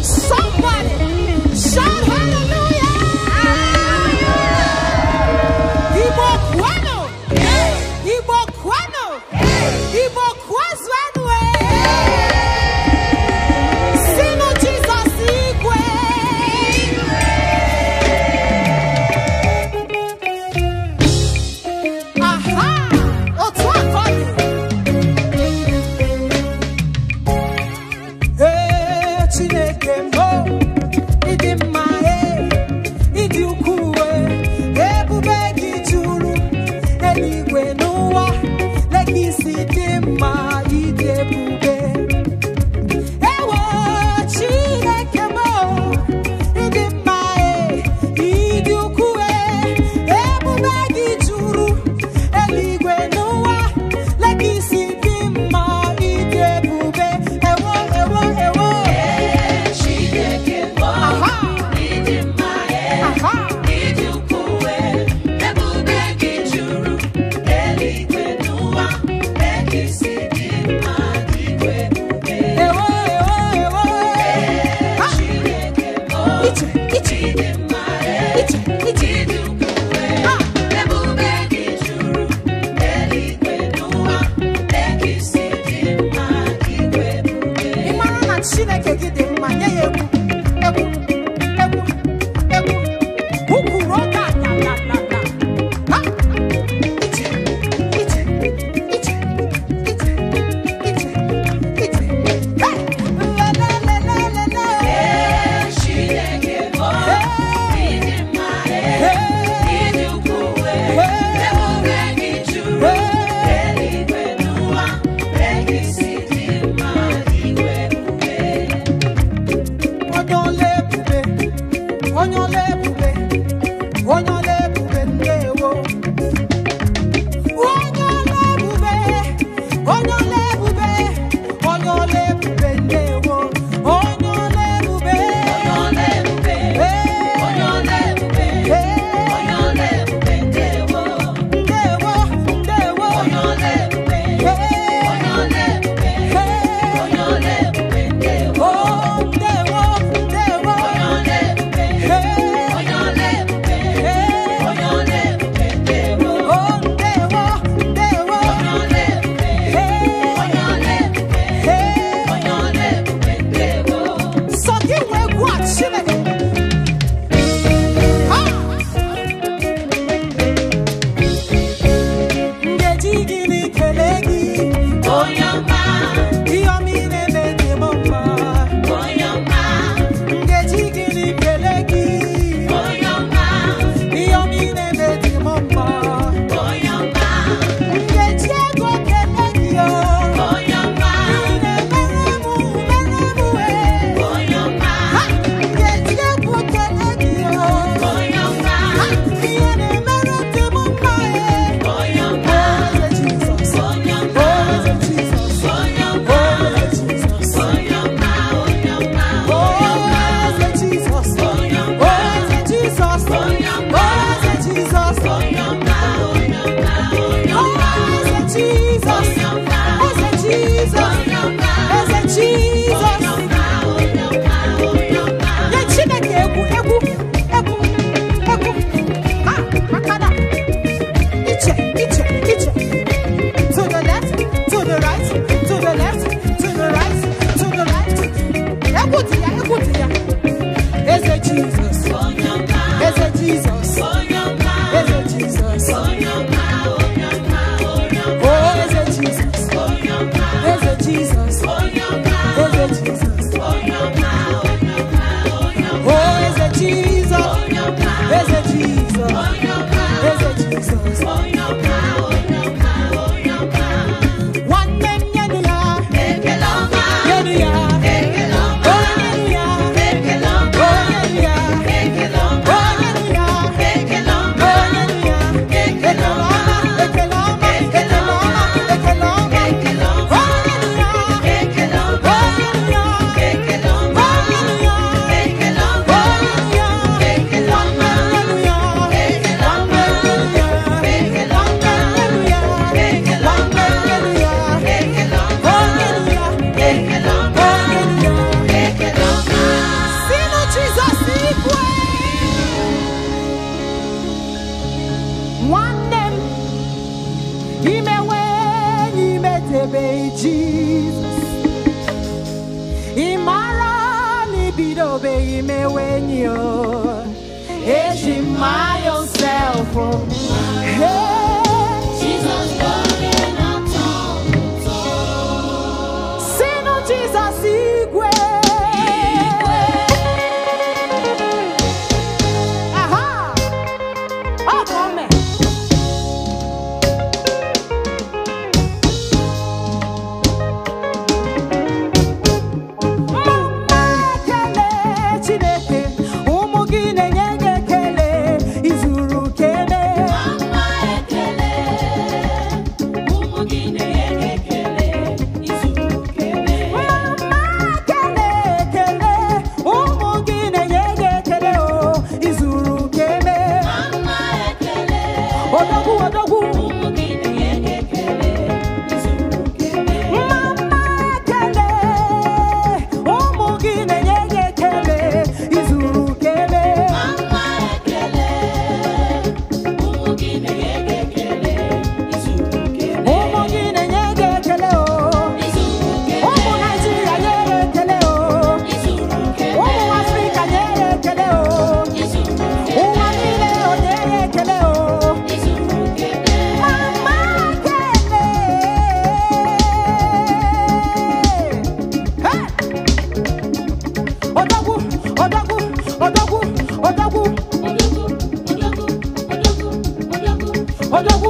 Somebody, nwanne m imewe enyi metebe jizọs ịmara na ibidobeghị we ni o eji my own self o hey. no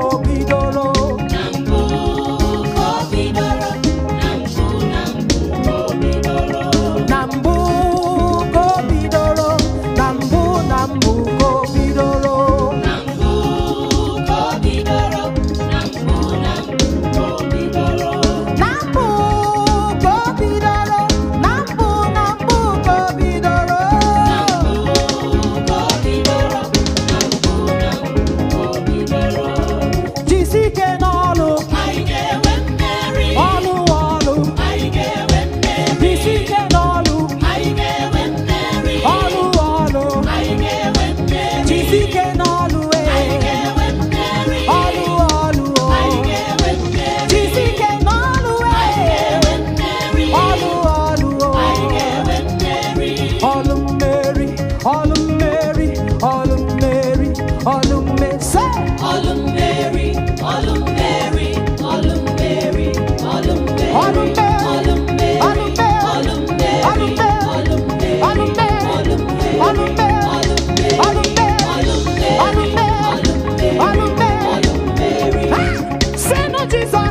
poco. ça